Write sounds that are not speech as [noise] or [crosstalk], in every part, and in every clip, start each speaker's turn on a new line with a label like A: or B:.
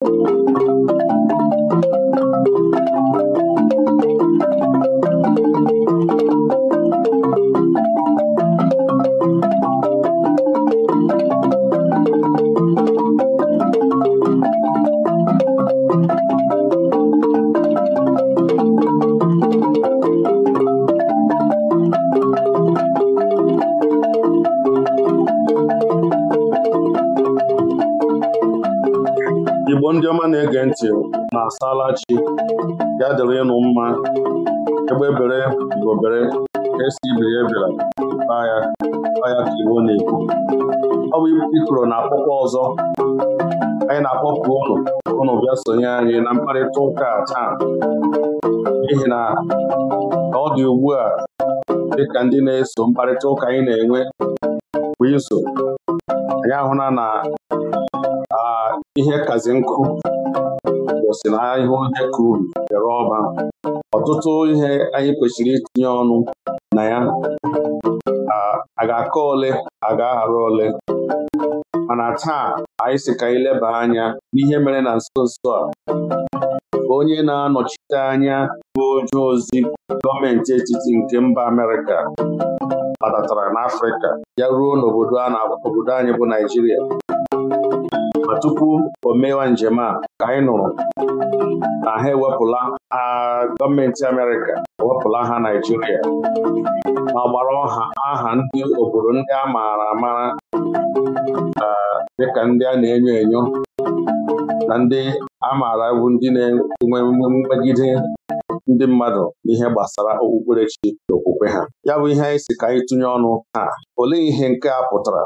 A: Thank you. ya dịrị ịnụ mma egbe bere igbo bere esi ibiri ebela paya paya ka iwu na-ekwu ọ bụ ikoro na-akpọkwa ọzọ anyị na-akpọpụ ụlọ ụnụ bịa sonye anyị na mkparịta ụka taa n'ihi na ọ dị ugbu a dịka ndị na-eso mkparịta ụka anyị na-enwe bụ izu anyị ahụla na ihe kazi nkụ si na ahịa ohe kuru bịara ọba ọtụtụ ihe anyị kwesịrị itinye ọnụ na ya a ga-akọ ole a ga-aghara ole mana taa anyị si ka anyị leba anya n'ihe mere na nso nso a onye na-anọchite anya bụ onye ozi gọọmenti etiti nke mba Amerịka batatara n'Afrịka ya ruo n'obodo anyị bụ Naijiria ma tupu o mewa njem a ka anyị nụrụ na ha ewepụla gọọmenti Amerịka ewepụla ha Naijiria ma gbara ọha aha ndị obodo ndị a maara dị ka ndị a na-enyo enyo na ndị a maara bụ ndị na-enwe mmegide ndị mmadụ n'ihe gbasara okpukperechi na okwukwe ha ya bụ ihe anyị si ka anyị tụnye ọnụ taa olee ihe nke a pụtara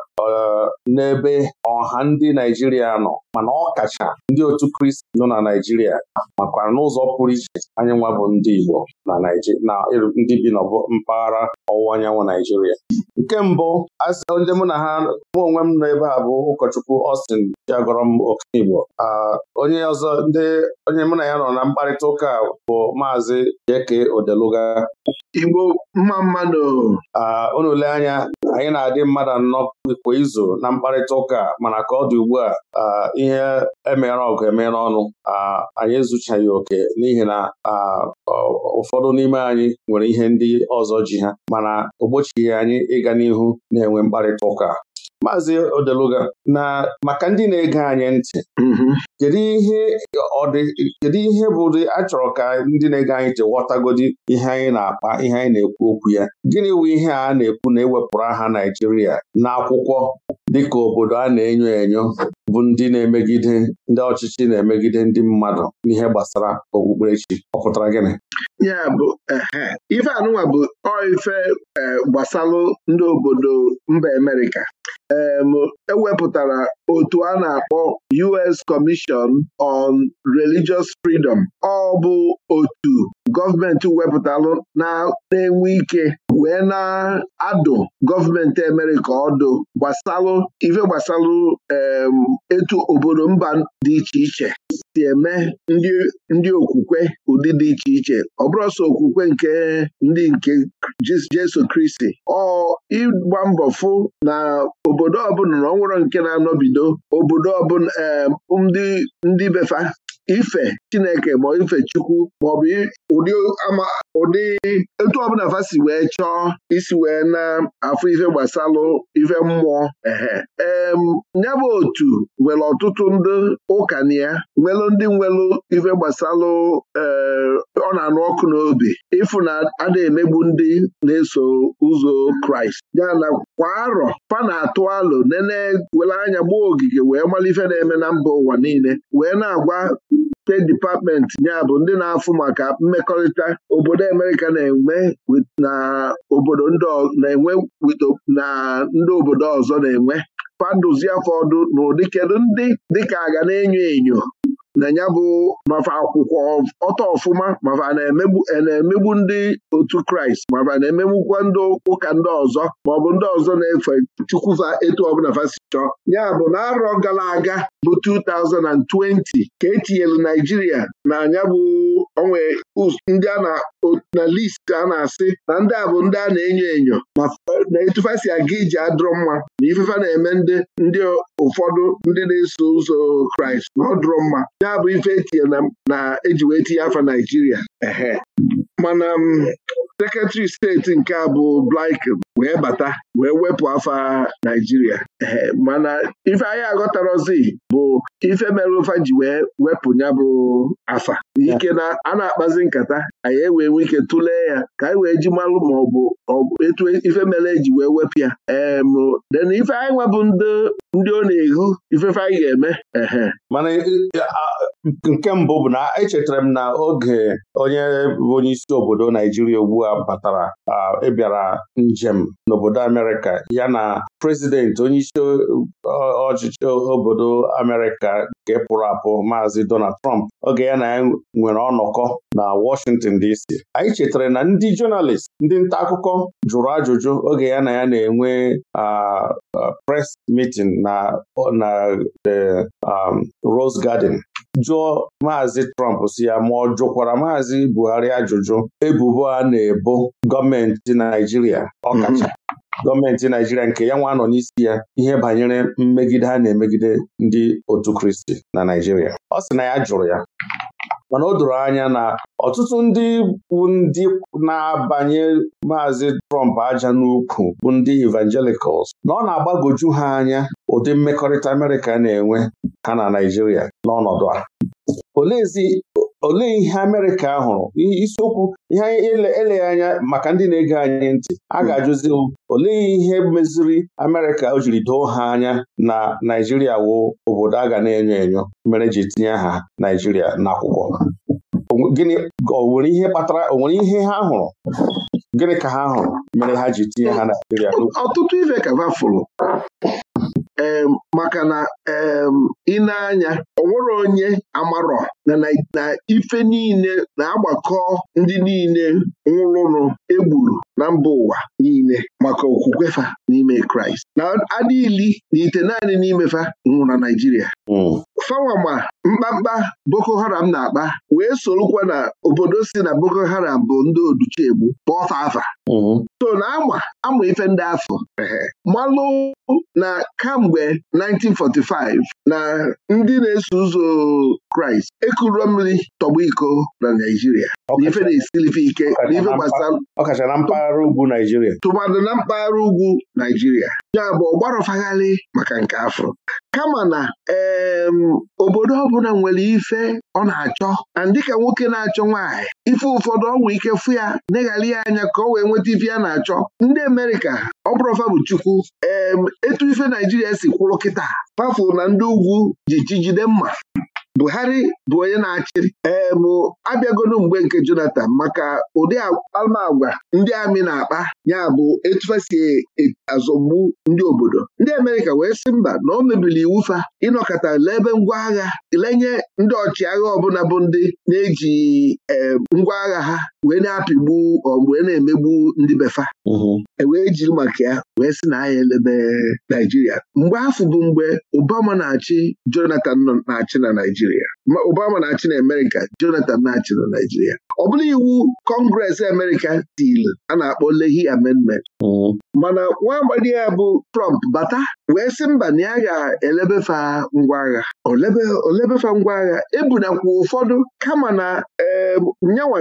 A: n'ebe ọha ndị Naijiria nọ mana ọ kacha ndị otu Kristi nọ na Naijiria makwa n'ụzọ pụrụ iche anyị nwa bụ ndị Igbo na ndị bi n'ọbụ mpaghara ọwụwa anyanwụ Naijiria nke mbụ ndị mụ na ha mụ onwe m nọ ebe a bụ ụkọchukwu Austin Chiagọrọ m Okenigbo onye ọzọ ndị onye mụ na ya nọ na mkparịta ụka bụ maazị Jeke Odeluga mma mmadụ unule anya anyị na-adị mmadụ anọ kwa izu na mkparịta ụka mana ka ọ dị ugbu a ihe emere ọgụ emere ọnụ anyị ezuchaghị oke n'ihi na ụfọdụ n'ime anyị nwere ihe ndị ọzọ ji ha mana o anyị ịga n'ihu na-enwe mkparịta ụka Maazị Odeluga na maka ndị na-ege anyị ntị mm-hmm. kedu ihe bụ ụdị achọrọ ka ndị na-ege anyị ntị ghọtagodi ihe anyị na-akpa ihe anyị na-ekwu okwu ya gịnị bụ ihe a na-ekwu na ewepụrụ aha Naijiria n'akwụkwọ dịka obodo a na-enyo enyo bụ ndị na-emegide ndị ọchịchị na-emegide ndị mmadụ n'ihe gbasara okpukperechi ọ pụtara gịnị ya bụ
B: ife anụnwa bụ ife e, gbasalụ ndị obodo mba Amerịka ewepụtara e otu a na-akpọ US Commission on Religious Freedom ọ bụ otu gọọmenti wepụtalụ na-enwe ike wee na-adụ gọọmenti emere ka ọ dụ gbasalụ ife gbasalụ etu obodo mba dị iche iche si eme ndị okwukwe ụdị dị iche iche ọ bụrụ sọ okwukwe nke ndị nke Jesu Kristi ọ ịgba mbọ fụ na obodo ọbụla na ọ nwụrụ nke na-anọbido obodo ọbụla ndị befa ife Chineke ma ife Chukwu maọbụ ụdị ama ụdị etu ọbụla fa si wee chọọ isi wee na-afụ ife gbasalụ ife mmụọ ehe ee bụ otu nwere ọtụtụ ndị ụka na ya nwelụ ndị nwelụ ife gbasalụ e, ọ na-anụ ọkụ n'obi ịfụ na ada emegbu ndị na-eso ụzọ Kraịst ya na kwa arọ fa na-atụ alụ nene were anya gbuo ogige wee mara ife na-eme na mba ụwa niile wee na-agwa steeti dipatmenti ya bụ ndị na-afụ maka mmekọrịta obodo Amerịka na-enwe na na ndị obodo ọzọ na-enwe faduzie fọdụ na n'ụdị kedu ndị dịka aga na-enyo enyo na ya bụ mafa akwụkwọ ọtọ ọfụma mafa na-emegbu ndị otu kraịst mafa na-emegbukwa ndị ụka ndị ọzọ ma ọ bụ ndị ọzọ na-efe chukwufa etu ọbụla fasi chọọ ya bụ na arọ gara aga bụ 2020 ka etinyela naijiria na anya bụ onwe ndị a na list a na-asị na ndị a bụ ndị a na-enyo enyo ma na etufasi aga iji adụrụ mma na ifefa na-eme ndị ụfọdụ ndị na-eso ụzọ Kraịst na ọ dụrụ mma ya bụ ife etinye na eji wee tinye afa Naijiria mana um, sekretari steeti nke a bụ Blinken wee bata wee wepụ afa Naijiria mana ife anyị aghọtarozi bụ ife mere ụfa ji wee wepụ ya bụ afa ike na a na-akpazi nkata anyị ewee nwee ike tụlee ya ka anyị wee ji malụ ma ọ bụ etu ife mere eji wee wepụ ya den ife anyị nwebụ ndị ọ
A: na-eghu ifefe anyị ga-eme ehe nke mbụ bụ na echetara m na oge onye bụ onye isi obodo Naijiria ugbu a batara ịbịara njem n'obodo Amerịka ya na prezidenti onyeisi isi ọchịchị obodo Amerịka nke pụrụ apụ maazị Donald Trump oge ya na ya nwere ọnọkọ na Washington DC anyị chetara na ndị jọnalist ndị nta akụkọ jụrụ ajụjụ oge ya na ya na-enwe pres mitin na um, Rose Garden jụọ maazị Trump si ya ma ọ jụkwara maazị Buhari ajụjụ ebubo a na-ebo gọọmenti Naijiria ọkacha mhm. gọọmenti Naijiria nke ya nwa nọ n'isi ya ihe banyere mmegide a na-emegide ndị otu Kristi na Naijiria ọ sị na ya jụrụ ya mana o doro anya na ọtụtụ ndị bụ ndị na-abanye maazị Trump aja n'ukwu bụ ndị evangelicals na ọ na-agbagoju ha anya ụdị mmekọrịta Amerịka na-enwe ha na Naịjirịa n'ọnọdụ a olee ihe Amerịka hụrụ isiokwu ihe eleghị anya maka ndị na-ege anyị ntị a hmm. ga-ajụzi m olee ihe meziri Amerịka o jiri doo ha anya na Naijiria wụ obodo a ga na-enyo enyo mere ji tinye aha Naijiria n'akwụkwọ gịnị o nwere ihe kpatara o nwere ihe ha hụrụ gịnị ka ha hụrụ mere ha ji tinye ha Naijiria ọtụtụ ife ka fụrụ
B: maka na ị na anya ọ onye amarọ na ife niile na-agbakọ ndị niile nwụrụnụ egburu na mba ụwa niile maka okwukwefa n'ime Kraịst na adịili na ite naanị n'imefa nwụrụ na Naịjirịa hmm. fawama mkpamkpa Boko Haram na-akpa wee sorokwa na obodo si na Boko Haram bụ ndị oduchegbu pọta afa hmm. so na ama ama ife ndị afọ malụ na kam mgbe 1945 na ndị na-eso ụzọ Kraịst ekuru mmiri tọgbọ iko na Naijiria. na ọkacha na mpaghara ugwu Naijiria tụmadụ na mpaghara ugwu Naijiria ya bụ ọgbarọfagharị maka nke afọ kama na obodo ọbụla nwere ife ọ na-achọ na dịka nwoke na-achọ nwaanyị ife ụfọdụ ọgwụ ike fụ ya neghara ya anya ka ọ wee nweta ife ya na-achọ ndị Amerịka ọ bụrụfa bụ Chukwu etu ife Naijiria si kwụrụ kịta pafu na ndị ugwu ji chi mma Buhari bụ onye na-achị eebụ abịagolu mgbe nke Jonathan maka ụdị agwa ndị amị na-akpa ya bụ etufe si e, azọgbu ndị obodo ndị Amerịka wee sị mba na o mebili iwu fa ịnọkọta n'ebe ngwa agha lenye ndị ọchịagha ọbụla bụ ndị na-eji ngwa agha ha wee na-apịgbu wee na-emegbu ndị befa e wee jiri maka ya wee sị na anyị elebe Naijiria mgbe afọ bụ mgbe Obama na-achị Jonathan na-achị na Naijiria Obama na-achị na Amerịka Jonathan na-achị na Naijiria ọ bụla iwu kọngres amerika tiri a na-akpọ Lehi amendment mm-hmm. mana nwa agbadi ya bụ Trump bata wee sị mba na ya ga-elebefa ngwa agha olebefa ngwa agha ebunakwa ụfọdụ kama na nyanwa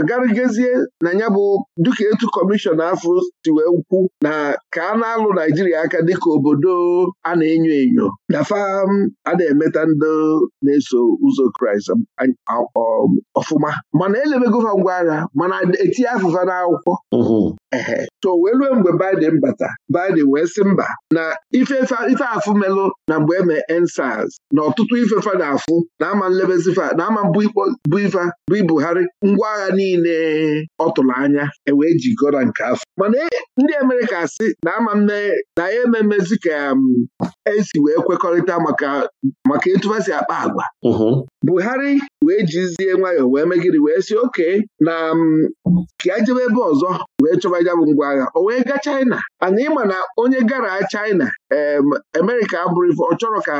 B: na ya bụ duka etu kọmishọna afọ si wee ukwu na ka a na-alụ Naijiria aka dịka obodo a na-enyo enyo na fam a na-emeta ndị na-eso ụzọ Kraịst prize um, um, ọfụma mana elebego gova ngwa agha mana etinye afụfa n'akwụkwọ mm-hmm. ehe so wee ruo mgbe Biden bata Biden wee sị mba na ife afụ melụ na mgbe eme ensaz na ọtụtụ ifefa na-afụ na ama nlebezifa na ama bụ ifa bụ ibuhari ngwa agha niile ọ tụrụ anya ewee ji na nke afọ mana e, ndị Amerịka si na ama na ya ememezi ka um, esi wee kwekọrịta maka maka etu si akpa agwa mm-hmm. Buhari wee jizie nwayọọ wee megiri wee sị oke na um, ka a jebe ebe ọzọ wee chọba ya bụ ngwa agha o wee gaa China ana ịma na onye gara China Amerịka abụrụ ọ chọrọ ka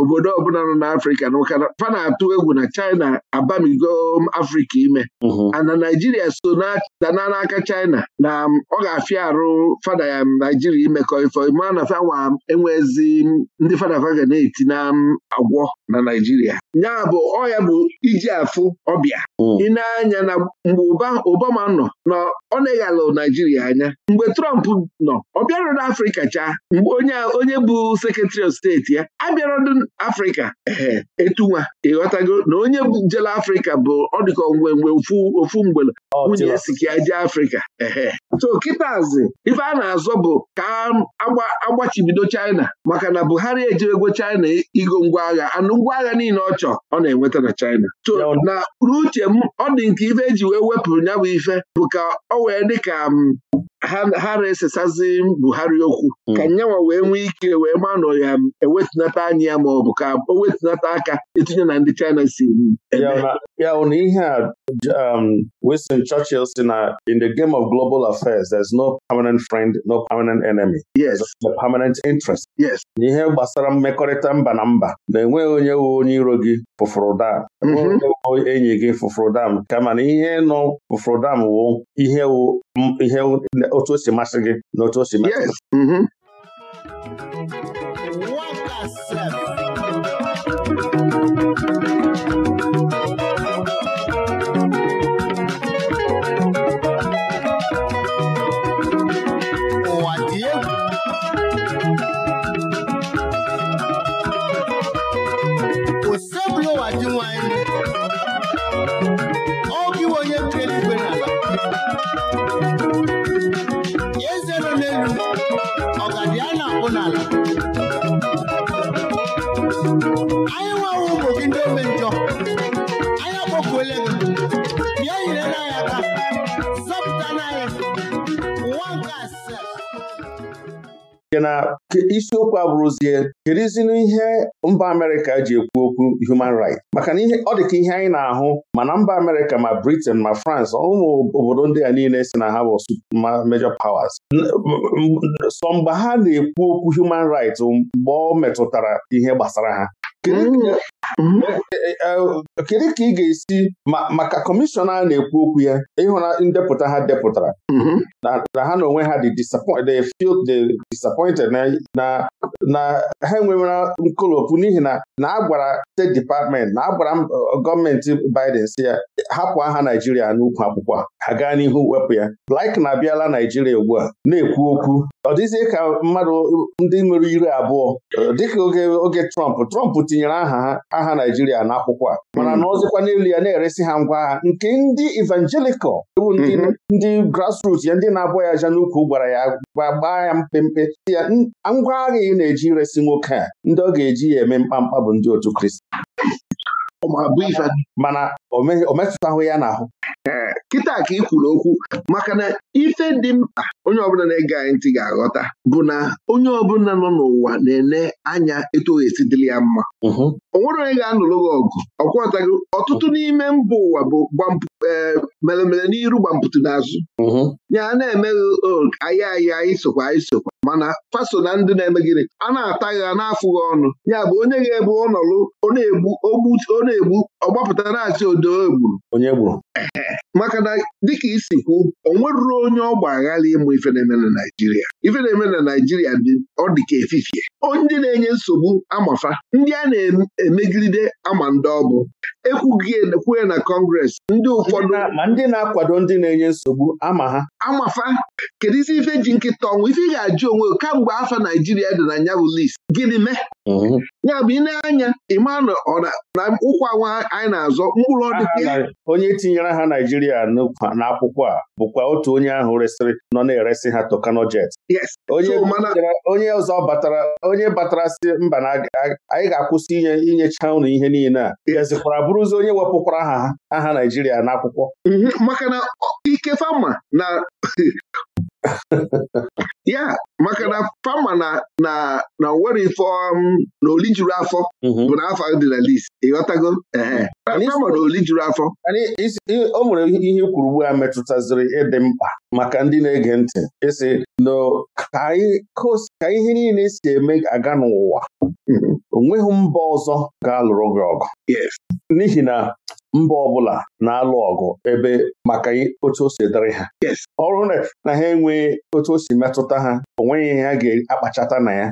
B: obodo ọbụla nọ n'Afrịka na ụka fa na-atụ egwu na China abamigo um, Afrika ime mhm. ana Naijiria so dana n'aka China na um, ọ ga-afịa arụ fada ya um, Naijiria imekọ ife ma na fanwa enwezi ndị fada ga na-eti na agwọ na Naijiria ya bụ ọya bụ iji afụ ọbịa mhm. ịna-anya na mgbe Obama nọ na ọ na-eghalụ Naijiria anya mgbe Trump nọ ọ bịarụrụ n'Afrika cha mgbe onye onye bụ sekretari of steeti ya abịarodụ afrịka ee etunwa ịghọtago na onye jele afrịka bụ ọdịkọ ngwengwe ofu mgbele nwunye sikia je afrịka ee so kịtazi ife a na-azọ bụ ka agbachibido China maka na Buhari ejirego China igo ngwa agha anụ ngwa agha niile ọ chọ ọ na-enweta na China to na uche m ọ dị nke ife eji wee wepụrụ ya bụ ife bụ ka ọ wee dị ka um, ha na-esesazi Buhari okwu hmm. ka nyanwa wee nwee ike wee manụ ya ewetinata anya ya ma ọ bụ ka o wetinata aka itinye na ndị China si
A: ya na ihe a um, Winston Churchill si na in the game of global affairs there is no permanent friend no permanent enemy yes No permanent interest yes n'ihe gbasara mmekọrịta mba na mba na-enweghị onye wu onye iro gị fụfụrụ mhm. enyi gị fụfụrụ kama na ihe nọ fụfụrụ dam wụ ihe otu o si masị gị na otu o si masị ụlọ nke na isiokwu abụrụzie kedụzinu ihe mba Amerịka ji ekwu okwu human rights maka na ọ dịka ihe anyị na-ahụ mana mba Amerịka ma Britain ma France ụmụ obodo ndị a niile si na ha bụ major powers sọ mgbe ha na-ekwu okwu human rights mgbe ọ metụtara ihe gbasara ha Eh, eh, eh, kedu ka ị ga-esi maka kọmishọna a na-ekwu okwu ya ịhụra ndepụta ha depụtara mhm. na ha na onwe ha dị disappointed na ha enwewera nkolopụ n'ihi na na agwara steeti dipatmenti na agwara gọọmenti Biden si ya hapụ aha Naijiria n'ukwu akwụkwọ a ha gaa n'ihu wepụ ya Blake na-abịala Naijiria ugbu a na-ekwu okwu ọ dịzie ka mmadụ ndị nwere iri abụọ dịka oge Trump Trump tinyere aha ha agha Naijiria n'akwụkwọ a mm-hmm. mana na ọzọkwa n'elu ya na-eresi ha ngwa agha nke ndị Evangelical, ewu mm-hmm. ndị grassroots ya ndị na-abụ ya aja n'ukwu gwara ya gbaa ya mpempe ya ngwa agha ị na-eji resị nwoke a ndị ọ ga-eji ya eme mkpamkpa bụ ndị otu Kristi mana o ya n'ahụ kịta ka ị kwuru okwu maka na
B: ife dị mkpa onye ọbụla na-ege anyị ntị ga-aghọta bụ na onye ọbụla nọ n'ụwa na-ene anya etu esi dịrị ya mma o nwere onye ga-anụrụ gị ọgụ ọkwọtago ọtụtụ n'ime mba ụwa bụ e, meremere n'iru gbampụtụ n'azụ ya na-emeghị anyị ahịa anyị sokwa anyị sokwa mana faso na ndị na-eme gịnị a na-ata gha na-afụghị ọnụ ya bụ onye ga-ebu ọnọlụ ọ na-egbu ọ na-egbu ọgbapụta na-achị odo egburu onye gburu maka na dịka isi kwu o nweruru onye ọgba aghara ịmụ ife na-eme na Naịjirịa ife na-eme na Naịjirịa dị ọ dị ka efifie ndị na-enye nsogbu amafa ndị a na-emegide ama ndị ọbụ ekwughị ekwughị na kọngres ndị ụfọdụ ma ndị na-akwado ndị na-enye nsogbu ama ha amafa kedu isi ife ji nkịta ọnwụ ife ị ga-ajụ onwe kamgbe afa Naijiria dị na nya bụ list gịnị mee mhm. ya bụ ị na-anya ịma na ụkwa nwa anyị na-azọ mkpụrụ ọdịda
A: onye tinyere ha Naijiria n'akwụkwọ a bụkwa otu onye ahụ resịrị nọ na eresị ha tokanojet onye ọzọ batara onye batara si mba na anyị ga-akwụsị inye inyecha ụnụ ihe niile a gazikwara bụrụzi onye wepụkwara aha aha Naijiria n'akwụkwọ mhm, maka na ike fama na
B: [laughs] [laughs] ya maka na fama na na na nwere ife um, na oli juru afọ mhm. bụ na afọ dị na list ịghọtago ehe fama
A: na oli juru afọ o nwere ihe kwuru ugbu a metụtaziri ịdị mkpa maka ndị na-ege ntị ịsị na ka ihe niile si eme aga n'ụwa mhm. Onweghị mba ọzọ ga-alụrụ gị ọgụ n'ihi na mba ọbụla na-alụ ọgụ ebe maka otu o si dịrị ha ọrụ na ha enweghị otu o si metụta ha onweghị ha ga-akpachata na ya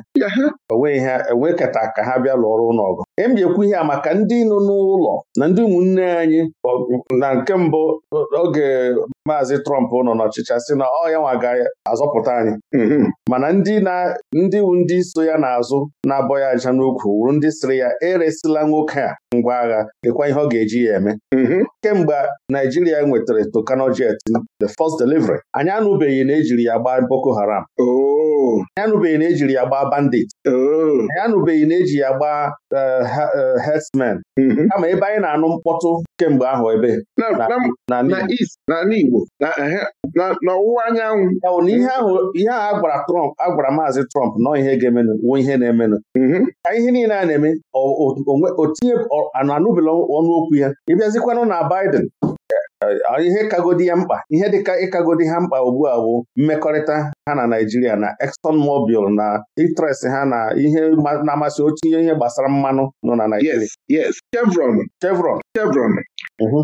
A: onweghị ha enwekata e ka ha bịa lụọ ọrụ n'ọgụ em ihe maka ndị nọ n'ụlọ na ndị ụmụnne anyị na nke mbụ oge maazị Trọmp nọ n'ọchịchị sị na ọ ya nwa ga-azọpụta anyị mm-hmm. mana ndị ndị so ya n'azụ na-abọ ya aja n'ukwu wuru ndị sịrị ya eresila nwoke a ngwa agha lekwa ihe ọ ga-eji ya eme mhm. kemgbe Naijiria nwetara Tucano the first delivery anyị anụbeghị na ejiri ya gbaa Boko Haram oh. anyị anụbeghị na ejiri ya gbaa bandit oh. anyị anụbeghị na eji ya gbaa eh, eh, herdsmen mhm. kama ebe anyị na-anụ mkpọtụ kemgbe ahụ ebe n'ọwụwa anyanwụ na ihe ahụ a Trump a Maazị Trump nọ ihe ga-emenụ wuo ihe na-emenụ mhm. ka ihe niile a na-eme otinye anụbela ọnụokwu ya ịbịazikwanụ na Biden eh, ihe kagodi ya mkpa ihe dịka ịkagodi ha mkpa ugbu a bụ mmekọrịta ha na Naijiria na Exxon Mobil na interest ha na ihe na-amasị otu ihe gbasara mmanụ nọ na Naijiria yes Chevron Chevron Chevron mm-hmm.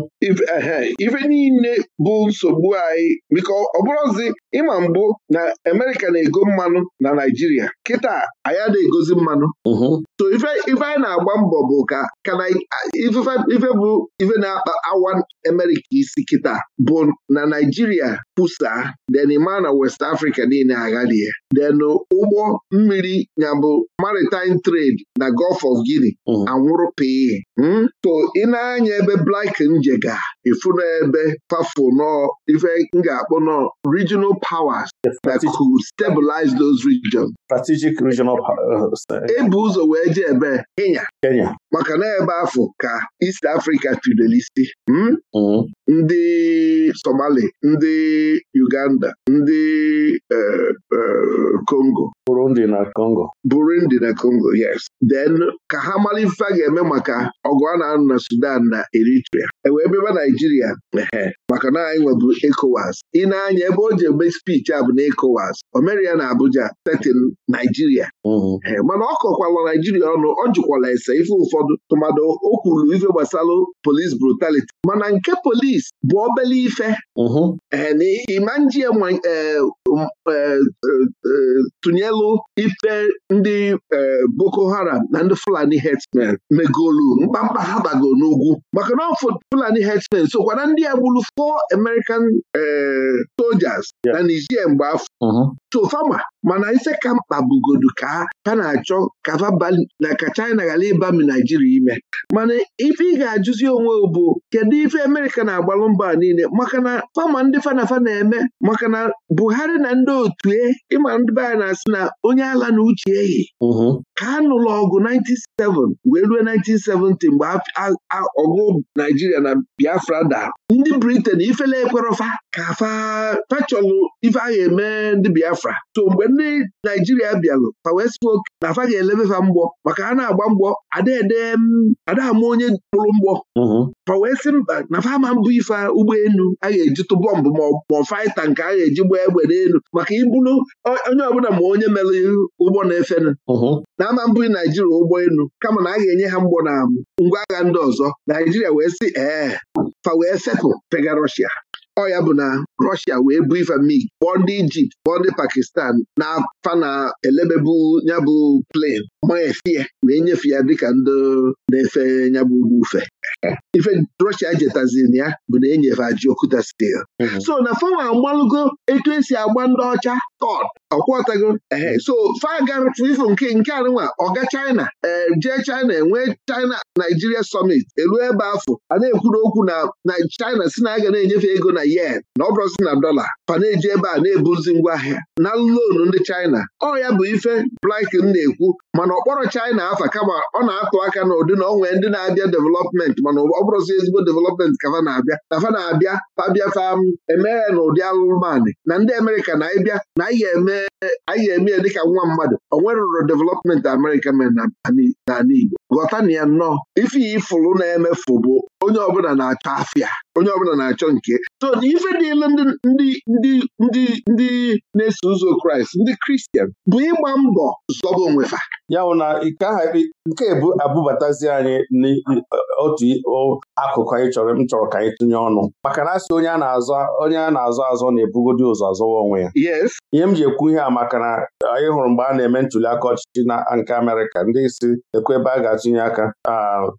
A: eh, eh, ife niile bụ nsogbu anyị biko ọ bụrụzi
B: ịma mbụ na Amerịka na-ego mmanụ na Naijiria kịta anyị na-egozi mmanụ mm-hmm. so ife anyị na-agba mbọ bụ ka ife bụ ife na-akpa awa amerika isi kịta bụ na Naijiria kwusa den ma na West Africa niile aghalie den ụgbọ mmiri nyabụ maritime trade na Gulf of Guinea mm-hmm. anwụrụ pii hmm? so ị na-anya ebe Blake njega efu n'ebe fafo nọ ife m ga-akpọ nọ regional powers that could stabilize those regions strategic regional powers uh, uh, ebu ụzọ wee ije ebe Kenya maka na ebe afọ ka East Africa tidoro isi hmm? Hmm. ndị Somali ndị Uganda ndị Uh, uh, Congo Burundi na Congo na Congo yes then ka ha mara ife a ga-eme maka ọgụ a na-anụ na Sudan na Eritrea ebe ebe Naijiria maka na anyị nwebụ ECOWAS ị na-anya ebe o ji eme spichi a bụ na ECOWAS o na Abuja tetin Naijiria mm-hmm. mana ọ kọkwala Naijiria ọnụ ọ jụkwala ese ife ụfọdụ tụmadụ o kwuru ife gbasalụ polis brutality mana nke polis bụ obele ife mm-hmm. ee na ịma Um, eh, eh, eh, tụnyelụ ife ndị Boko Haram na ndị Fulani herdsmen megolu mkpamkpa ha n'ugwu maka na Fulani herdsmen sokwa na ndị a gburu four American soldiers na Niger mgbe afọ Chofama mm-hmm. mana ise ka mkpa bugodu ka ka na-achọ na ka China ghara ịba Naijiria ime mana ife ị ga-ajụzi onwe bụ kedu ife Amerịka na-agbalụ mba niile maka na fama ndị fanafa na-eme maka na Buhari na ndị otu e ịma ndị be anyị na-asị na onye ala na uche ehi mhm. ka a nụrụ ọgụ 1997 wee ruo 1970 mgbe ọgụ Naijiria na Biafra da ndị Britain ifele ekwerofa ka fachọlụ ife a eme ndị Biafra so mgbe ndị naijiria bịaru, fa wee oke na afa ga-elebefa mgbọ maka a na-agba mgbọ adama onye kpụrụ mgbọ mhm. fa wee sị mba na fa ama mbụ ife ụgbọelu a ga eji bọmbụ ma faịta nke a ga-eji gba egbe n'elu maka ibulu onye ọbụla ma onye mere ụgbọ na-efe mhm. na ama mbụ naijiria ụgbọelu kama na a ga-enye ha mgbọ na ngwa agha ndị ọzọ naijiria wee sị ee fa wee fepụ pega rọshia ọ ya bụ na Rọshia wee bụ ife mig kpọọ ndị Ijipt kpọọ ndị Pakistan na afa na elebebu nyabụ plen ma efie wee nyefe ya dịka ndị na-efe nyabụ ufe ife Rọshia jetazin ya bụ na enyefe aji okwuta stil mhm. so na fanwa agbalụgo etu esi agba ndị ọcha tọd ọkwọtago ehe so fagafifu nke nke anụnwa ọga China e, jee China enwee China Nigeria summit elu ebe afọ a na-ekwuru okwu na China si na aga na-enyefe ego na yen na ọ bụrụzi na dọla pana-eji ebe a na-ebuzi ngwa ahịa na lonu ndị China ọ ya bụ ife Blinken na-ekwu mana ọkpọrọ China afa kama ọ na-atụ aka na ụdị na ndị na-abịa development mana ọ bụrụzi ezigbo development ka fa na-abịa na fa na-abịa fabịa fam um, emeghe na ụdị alụmanị na ndị Amerịka na ịbịa na anyị eme ya dịka nwa mmadụ o nwerụrụ development Amerịka mere n'ala Igbo ghọta na ya nnọọ ife ya na-emefu bụ onye ọbụla na-achọ afịa onye ọbụla na-achọ nke so ife dịla ndị ndị ndị
A: ndị na-eso ụzọ Kraịst ndị Kristian bụ ịgba mbọ zọba onwefa ya bụ na nke ahụ nke ebu abụbatazi anyị n'otu akụkụ anyị chọrọ m chọrọ ka anyị tụnye ọnụ maka na asị onye a na-azọ onye a na-azọ azọ na-ebugodi ụzọ azọwa onwe ya ihe m ji ekwu ihe a maka na anyị hụrụ mgbe a na-eme ntuli aka ọchịchị na nke Amerịka ndị isi ekwe ebe a ga-atụnye aka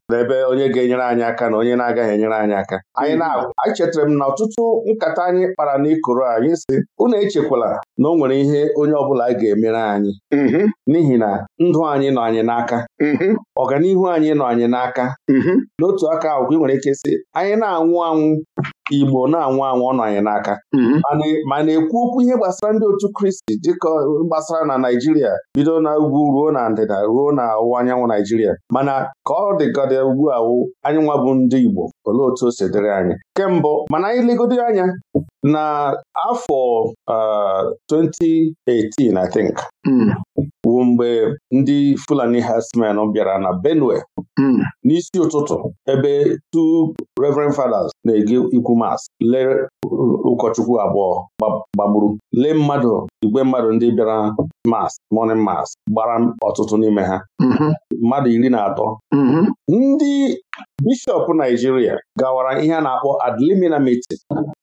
A: n'ebe onye ga-enyere anyị aka na onye na-agaghị enyere anyị aka anyị mm-hmm. na chetara m na ọtụtụ nkata anyị kpara n'ikoro anyị si unu echekwala na o nwere ihe onye ọ bụla ga-emere anyị mm-hmm. n'ihi na ndụ anyị nọ anyị n'aka mm-hmm. ọganihu anyị nọ anyị n'aka mm-hmm. n'otu aka ahụ ị nwere ike sị anyị na-anwụ anwụ Igbo na-anwụ anwụ ọ nọ anyị n'aka mm-hmm. ma na-ekwu okwu ihe gbasara ndị otu Kristi dịka gbasara na Naijiria bido na ugwu ruo na ndịda ruo na ọwụwa anyanwụ Naijiria mana ka ọ dịgọdị ugbu a anyị bụ ndị Igbo olee otu o si anyị kemgbe mana anyị legodo anya na afọ 2018 I think hmm. bụ mgbe ndị Fulani herdsmen bịara na Benue hmm. n'isi ụtụtụ ebe two Reverend Fathers na-ege ikwu mas lee ụkọchukwu abụọ gbagburu lee mmadụ igwe mmadụ ndị bịara mas Mọne mas gbara ọtụtụ n'ime ha mm-hmm. mmadụ iri na atọ mm-hmm. ndị Bishọp Naijiria gawara ihe a na-akpọ ad mitin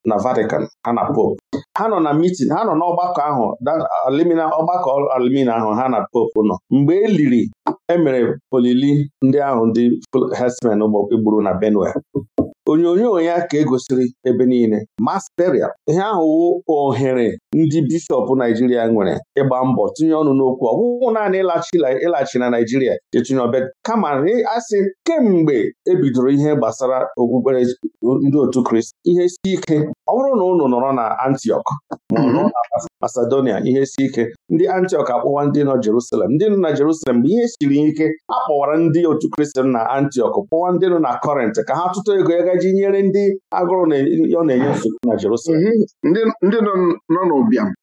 A: na Vatican ha na Pope ha nọ na mitin ha nọ n'ọgbakọ ahụ ọgbakọ alimina ahụ ha na Pope nọ mgbe e liri emere olili ndị ahụ ndị herdsmen gburu na Benue onyonyo ya ka egosiri ebe niile Masteria. ihe ahụ wụ ohere ndị bishọp Naijiria nwere ịgba mbọ tinye ọnụ n'okwu ọ naanị ịlaghachi na Naijiria etinye ọbịa kama asị kemgbe ebidoro ihe gbasara okpukpere ndị otu Kristi ihe si ike ọ bụrụ na ụnụ nọrọ na Antiọk Masedonia ihe si ike ndị Antiọk akpọwa ndị nọ Jerusalem ndị nọ na Jerusalem mgbe ihe siri ike akpọwara ndị otu Kristi na Antiọk kpọwa ndị nọ na Kọrint ka ha tụtụ ego ego ji nyere ndị agụrụ ọ na-enye nsogbu na Jerusalem mhm. ndị nọ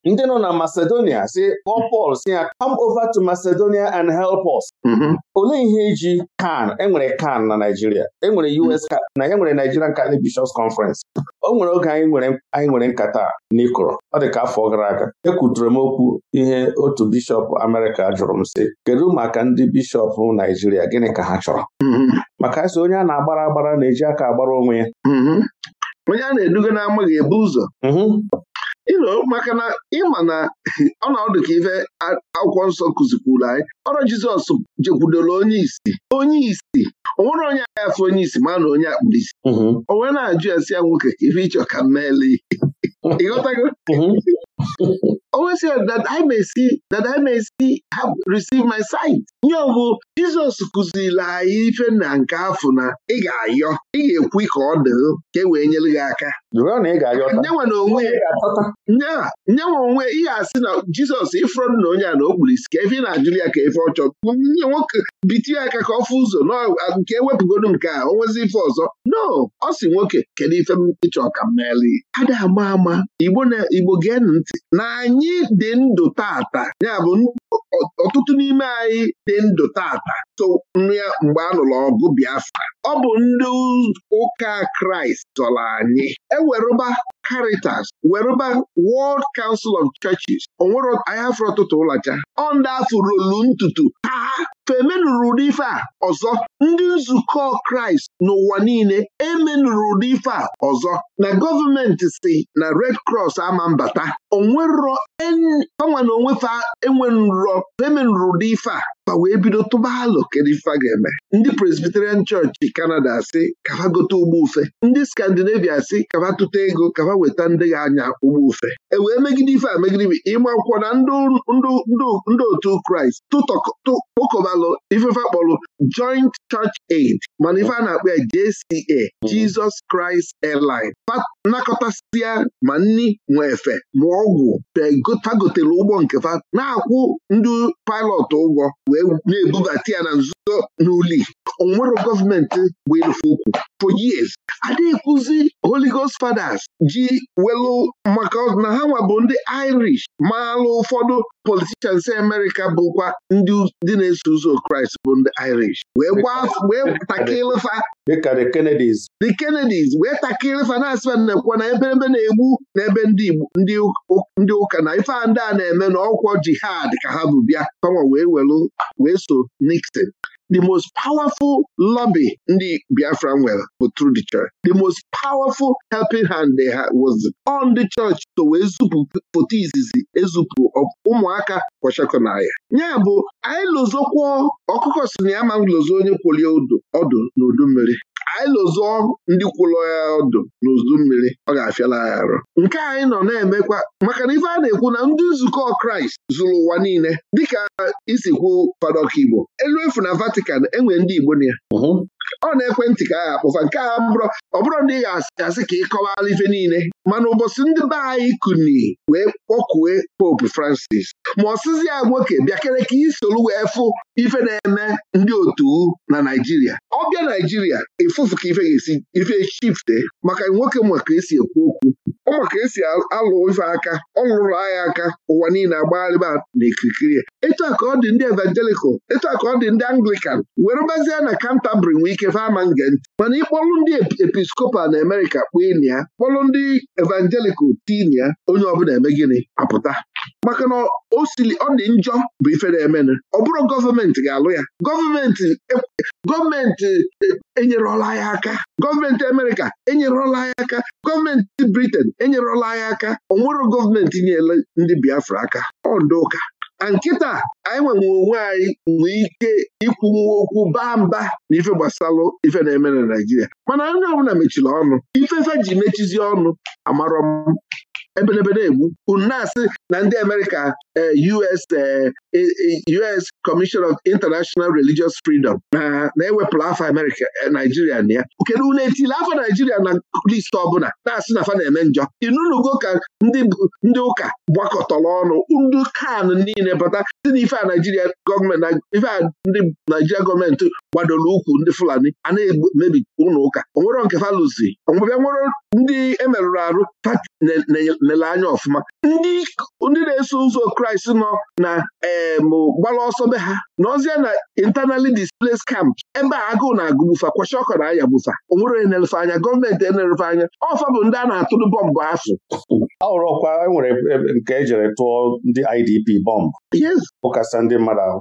A: ndị nọ na Macedonia si kpọọ Pọl si ya come over to Macedonia and help us mhm. olee ihe iji kan enwere kan na Naijiria enwere US na ya e nwere Nigerian Catholic Bishops Conference o nwere oge anyị nwere nkata n'ikoro ọ dị ka afọ gara aga ekwutere m okwu ihe otu bishọp America jụrụ m si, kedu maka ndị bishọp Naijiria gịnị ka ha chọrọ mhm. maka asị onye a na-agbara agbara na-eji aka agbara onwe ya mm-hmm. onye a na-eduga na-amaghị ebu ụzọ ilo
B: mm-hmm. maka na ịma na ọdụ ka ife akwụkwọ nsọ kụzikwuru anyị ọrụ Jizọs jekwudoro onye isi onye isi o nwere onye agha afọ onye isi ma na onye akpụrụ isi mm-hmm. o wee na-ajụ ya ya nwoke ife ịchọ ka mmeli [laughs] ịghọtago [laughs] always said that I may see my sight. nye ọbụ Jizọs kụziri anyị ife na nke afọ na ị ga-ayọ ị ga-ekwu ka ọ dị ka e wee nyere gị aka nyenwa onwe ị ga-asị na Jizọs ịfụrọdụ na onye a na o kpuru isi ka efi na-ajụrụ ya ka efe ọchọ nye nwoke biti aka ka ọ fụ ụzọ nke ewepụgodu nke a o ife ọzọ no ọ si nwoke kedu ife m ịchọ ka m meeli ada ama ama Igbo gee ntị n'anya anyị dị ndụ tata bụ ọtụtụ n'ime anyị dị ndụ tata so ya mgbe a nụrụ ọgụ Biafra ọ bụ ndị ụka Kraịst zọrọ anyị ewerụba Caritas werụba World Council of Churches onwere anyị afọ ọtụtụ ụlọcha ọ ndị rolu ntutu ha femenụrụ ụdị ife a ọzọ ndị nzukọ kraịst n'ụwa niile emenụrụ ụdị ife a ọzọ na gọọmenti si na red cross ama mbata onwerọ anwa na onwefe enwerọ femenụrụ ụdị ife a fa wee bido tụba alụ kedu ife ga-eme ndị Presbyterian chọọchị Kanada si kaba gote ụgbọ ufe ndị skandinavia si kaba tụta ego kaba weta ndị gị anya ụgbọ ufe e wee megide ife a megide ịma akwụkwọ na ndị otu Kraịst kpokọbalụ ifefe kpọrọ Joint Church Aid mana ife a na-akpọ ya JCA Jesus Christ Airline nakọtasịa ma nni nwe efe ma ọgwụ fa ụgbọ nke fa na-akwụ ndị pilọt ụgwọ wee wee na-ebubata ya na nzuzo n'uli onwero gọọmenti bụ for years adịghịkwụzi Holy Ghost Fathers ji welu maka na ha nwa bụ ndị Irish maalụ ụfọdụ politicians America bụkwa ndị dị na-eso ụzọ Kraịst
A: bụ ndị Irish wee takịlịfa the Kennedys
B: wee takịlịfa na-asịba nnekwa na ebe na-egbu na ebe ndị Igbo ndị ndị ụka na ife ndị a na-eme na ọkwọ jihad ka ha bụ bịa kama wee welu wee so Nixon The most powerful lobby ndị Biafra nwere bụ through the church. The most powerful helping hand they had was on the church to wee zupụ foto izizi ezupụ ụmụaka kwachakọnaya Nya bụ anyị lụzọkwuo ọkụkọ si na ya ma lụzọ onye kwụlie ọdụ n'udu mmiri anyị lụzọ ndị kwụlọ ya ọdụ n'udu mmiri ọ ga-afịala ya arụ nke anyị nọ na-emekwa maka na ife a na-ekwu na ndị nzukọ Kraịst zụrụ ụwa niile dịka isikwu Fada Okigbo elu efu na Vatican na enwere ndị Igbo na ya ọ na-ekwentị ka agha akpụfa nke a bụrụ ọ bụrụ na ị ga-asị ka ị kọwala ife niile mana ụbọchị ndị be anyị kuni wee kpọkue Pope Francis ma ọ ya nwoke bịakere ka isoro wee fụ ife na-eme ndị otu na Naijiria ọ bịa Naijiria ịfụfụ ka ife ga-esi ife chifte maka nwoke ka esi ekwu okwu ọ maka esi alụ ife aka ọ lụrụ agha aka ụwa niile agbagharịba na ekirikiri etu a ka ọ dị ndị evangelical etu a ka ọ dị ndị Anglican were gbazie na Canterbury nwee Chineke fama nge ntị mana ịkpọlụ ndị episkopal na Amerịka kpụ ini ya kpọlụ ndị evangelikal tin ya onye ọbụla eme gịnị apụta maka na o siri ọ dị njọ bụ ife na ọ bụrụ gọọmenti ga-alụ ya gọọmenti e, gọọmenti e, enyerọla ya aka gọọmenti Amerika enyerọla ya aka gọọmenti Briten enyerọla ya aka ọ nwere gọọmenti nyere ndị Biafra aka ọ ndị ụka nkịta anyị nwere onwe anyị nwee ike ikwunwu okwu baa mba na ife gbasalụ ife na-eme na naijiria mana onye ọbụla mechiri ọnụ ife ifefe ji mechizi ọnụ amarọ m ebelebe na-egbu unu na-asị na ndị Amerịka eh, US eh, eh, US Commission of International Religious Freedom na-ewepụrụ afọ Amerịka Naijiria na ya kedu unu etili afọ Naijiria na list ọbụla na-asị na afọ na-eme njọ inunugo ka ndị ụka gbakọtọrọ ọnụ ndị kan niile bata site ife a Naijiria gọọmenti ife a ndị Naijiria gọọmenti gbadoro ndị Fulani a na-emebi ụlọ ụka onwero nke fa lụzi ọbịa nwere ndị emerụrụ arụ pati na anya ọfụma ndị na-eso ụzọ kraịst nọ na gbara ọsọ be ha n'ọzịa na intanali displaced camp ebe a agụụ na-agụ bufa kwacha ọkọ na anya bufa onwere na-elefe anya gọọmenti
A: na anya ọfa bụ ndị a na-atụrụ bọmbụ afụ ahụrụkwa enwere nke ejere tụọ ndị IDP bọmbụ ụkasa ndị mmadụ ahụ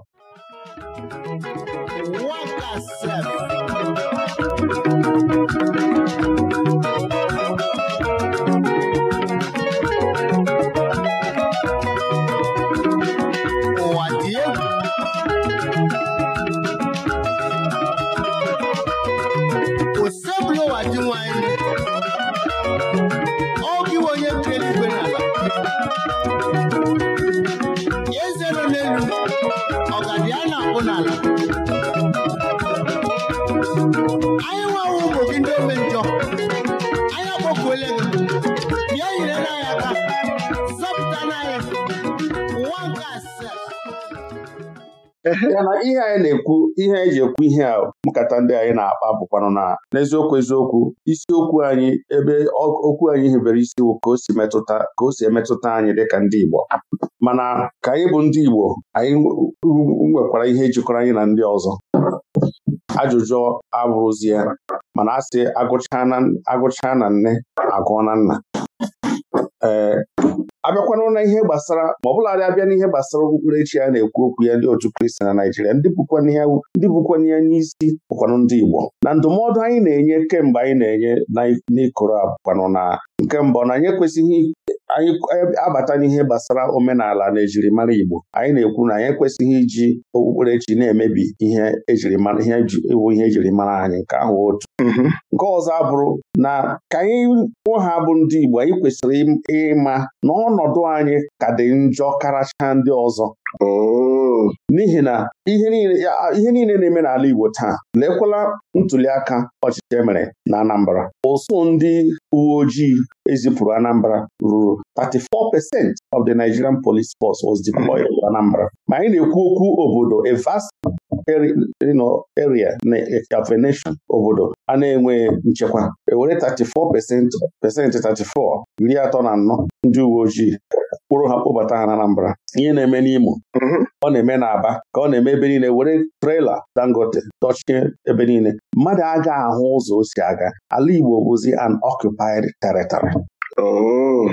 A: ya na ihe anyị na-ekwu ihe anyị ji ekwu ihe a nkata ndị anyị na-akpa bụkwanụ na n'eziokwu eziokwu isiokwu anyị ebe okwu anyị hibere isi ka o si metụta ka o si emetụta anyị dị ka ndị Igbo mana ka anyị bụ ndị Igbo anyị nwekwara ihe jikọrọ anyị na ndị ọzọ ajụjụ abụrụzie mana a sị agụchaa na nne agụọ na nna abịakwanụ na ihe gbasara ma ọ bụladị abịa n'ihe gbasara okpukperechi a na-ekwu okwu ya ndị otu kristi na Naịjirịa ndị bụkwana ndị anyị isi bụkwanụ ndị Igbo na ndụmọdụ anyị na-enye kemgbe anyị na-enye n'ịkụrụ abụkwanụ na nke mbụ na anyị ekwesịghị anyị e, abata n'ihe gbasara omenala na ejirimara Igbo anyị na-ekwu na anyị ekwesịghị iji okpukperechi na-emebi ihe ejirimara ihe ihe ejirimara anyị nke ahụ otu mm-hmm. nke ọzọ abụrụ na ka anyị kwụ ha bụ ndị Igbo anyị kwesịrị ịma na ọnọdụ anyị ka dị njọ karacha ndị ọzọ Oh. n'ihi na ihe niile na-eme n'ala Igbo taa lekwala ntuliaka ọchịchị emere na Anambra ụsụ ndị uwe ojii ezipụrụ Anambra ruru 34% of the Nigerian police force was deployed to Anambra ma anyị na-ekwu okwu obodo a vast area na a nation obodo a na-enwe nchekwa ewere 34 pesenti 34 iri atọ na anọ ndị uwe ojii kpụrụ ha kpụbata ha na Anambra ihe na-eme n'Imo mm-hmm. ọ na-eme n'Aba ka ọ na-eme ebe niile were trela Dangote dọchie ebe niile mmadụ aga ahụ ụzọ o si aga ala Igbo bụzi an occupied territory oh.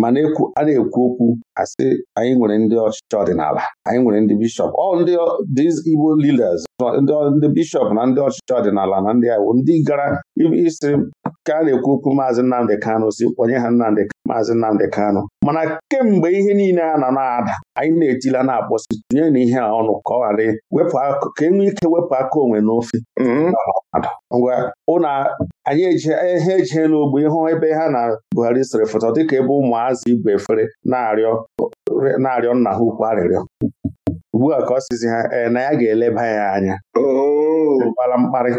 A: mana a na-ekwu okwu asị anyị nwere ndị ọchịchị ọdịnala anyị nwere ndị bishọp ọ ndị Igbo leaders ndị bishọp na ndị ọchịchị ọdịnala na ndị iwu ndị gara isi ka a na-ekwu okwu maazị Nnamdị Kano si kpọnye ha Nnamdị maazị Nnamdị Kano? mana kemgbe ihe niile a nọ na-ada anyị na-etila na-akpọsi tụnye na ihe a ọnụ ka ọ ghara wepụ ka e nwee ike wepụ aka onwe n'ofe mm-hmm. ngwa ụna anyị ha eje n'ogbe ịhụ ebe ha na Buhari sịrị foto dịka ebe ụmụazị igwe efere na-arịọ nna ha ukwu arịrịọ ugbu a ka ọ sịzi ha ee na ya ga-eleba ya anya gbara oh. mkparị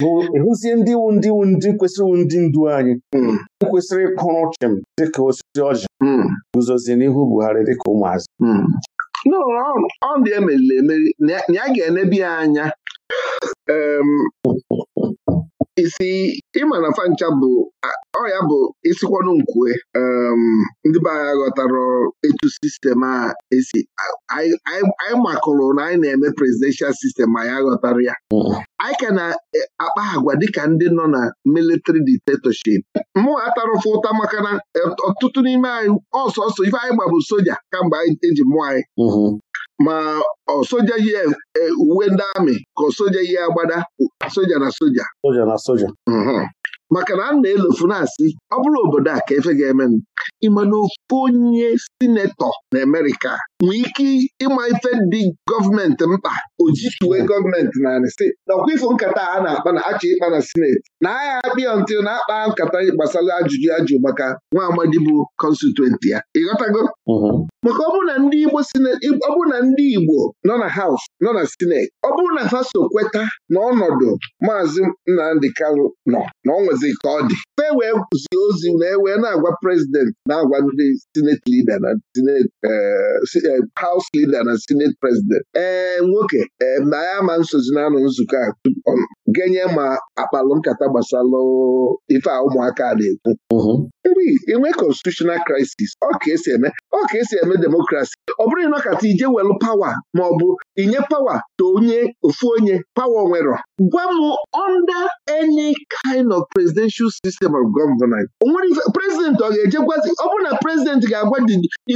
A: bụ ịhụzie ndị wu ndị wu ndị kwesịrị ndị ndu anyị hmm. kwesịrị ịkụrụ chịm dịka osisi ọjị hmm. guzozi n'ihu Buhari dịka ụmụazị hmm.
B: ọ dị emeriri emeri na ya ga-enebi ya anya isi ịma na fancha bụ ọya bụ isikwanụ nkwue um, ndị be anyị ghọtara etu sistem a esi anyị makụrụ na anyị na-eme presidential sistem ya aghọtara ya mm. anyị ka na-akpa e, agwa dịka ndị nọ na military dictatorship mụ atarụfụ ụta maka na e, ọtụtụ n'ime anyị ọsọsọ ife anyị gbabụ soja kamgbe anyị eji mụọ anyị mm-hmm. ma soja yi e, e, uwe ndị amị ka soja yi agbada soja na soja mhm. maka na a na-elofu na-asị ọ bụrụ obodo a ka efe ga-eme ịma na ofu onye sinetọ na Amerịka nwee ike ịma ife dị gọọmenti mkpa ojituwe gọọmenti narị si nakwa ifo nkata a na-akpa na achọ ịkpa na sineti na agha akpịa ntị na-akpa nkata gbasara ajụjụ ajụ maka nwa amadi bụ kọnstituenti ya ịghọtago mm-hmm. maka ọ bụrụ na ndị Igbo ọ bụrụ na ndị Igbo nọ na haus nọ na sineti ọ bụrụ na ha so kweta na ọnọdụ maazị Nnamdị Kanụ nọ na ọ nwezi ka ọ dị fe wee zie ozi na ewee na-agwa prezident na-agwa ndị sineti libia na eh, sineti House leader na Senate president ee eh, nwoke ee eh, ma ya ma nsozi na-anọ nzukọ a genye ma akpalụ nkata gbasara ife a ụmụaka na-ekwu enwee constitutional crisis ọ ka esi eme ọ ka esi eme demokrasi ọ bụrụ ịnọkata ije welụ pawa ma ọ bụ inye pawa to onye ofu onye pawa onwerọ gwa m under any kind of presidential system of government onwere ife prezident ọ ga-eje gwazi ọ bụrụ na prezident ga-agwa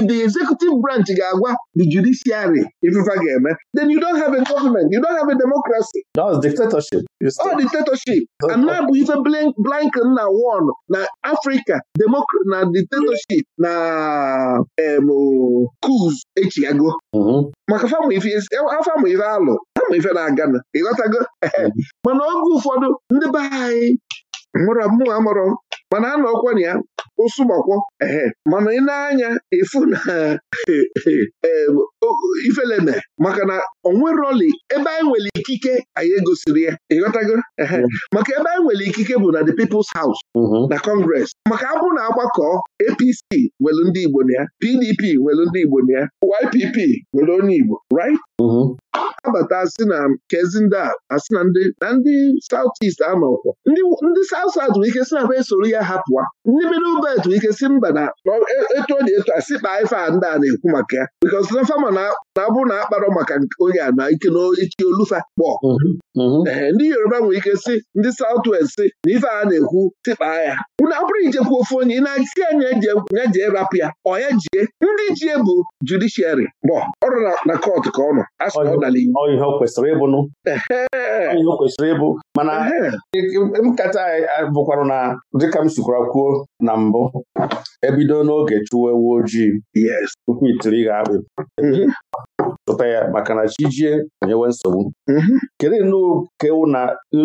B: the executive branch ga-agwa the judiciary ifefa ga-eme then you don't have a government you don't have a democracy that's dictatorship ọ dictatorship [laughs] ana na ife Blinken na won na Afrịka na dictatorship na kuz um, echigago mm-hmm. maka afọ ife alụ afọ ife na-agana ịghọtago mm-hmm. [laughs] mana oge ụfọdụ ndị be anyị mụrụ amụrụ mana a na ọkwa na ya ụsụgbakwọ ehe mana ị na-anya ịfụ na [laughs] ifeleme maka na onweroli ebe anyị nwere ikike anyị egosiri ya ịghọtago mm. maka ebe anyị nwere ikike bụ na the People's House mm-hmm. na Congress maka abụ na agbakọ APC nwere ndị Igbo na ya PDP nwere ndị Igbo na ya YPP nwere onye Igbo right mm-hmm. abata asị na kezi ndị asị na ndị na ndị South East amakwọ ndị South South nwere ike sị na ba esoro ya hapụwa ndị Middle Belt nwere ike si mba na etu ọ na etu a sị ife a ndị a na-ekwu maka ya because na fama na abụ na akparọ maka onye a na ike n'ichi olufa kpọ mhm, mhm. ndị Yoruba nwere ike si ndị South West sị na ife a na-ekwu tikpaa ya unu abụrụ ijekwu ofe onye ị na-asị anya ya jee rapụ ya ọ ya jie ndị jie bụ judiciary bọ ọrụ na kọt ka ọ nọ
A: n'ala kwesịrị ịbụ nụ ihe o kwesịrị ịbụ mana nkata eh, eh, bụkwarụ na dịka m sikwara kwuo na mbụ ebido n'oge chụwa ewu ojii tupu itiri gha akpị chụta mhm. tota ya maka na jijie nyewe mhm. nsogbu kedu nnukwu ewu na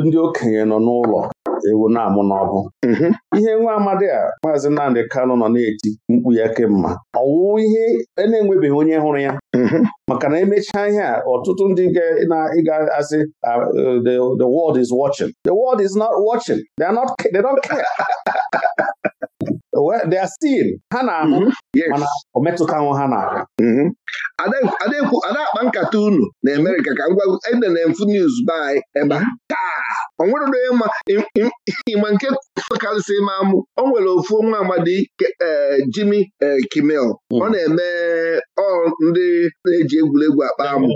A: ndị okenye nọ n'ụlọ nwata ewu na-amụ n'ọbụ mhm. ihe nwa amadi a maazị nnamdi kano nọ na-eti mkpu ya ọ ọwụwụ ihe e na-enwebeghị onye hụrụ ya mhm. maka na emechaa ihe a ọtụtụ ndị ga-asị ah, uh, the world is watching the world is not watching They are not they don't care [laughs] they are still ha na-ahụ mm-hmm. mana o metụtanwụ ha n'ala mm-hmm.
B: ada akpa nkata unu na Amerịka ka ngwa ede na mfu news by ebe mm-hmm. o nwere onye ma ịma nke karịsị ma mụ o nwere ofu nwa amadi eh, Jimi eh, Kimmel mm. ọ na-eme ọ ndị na-eji egwuregwu akpa amụ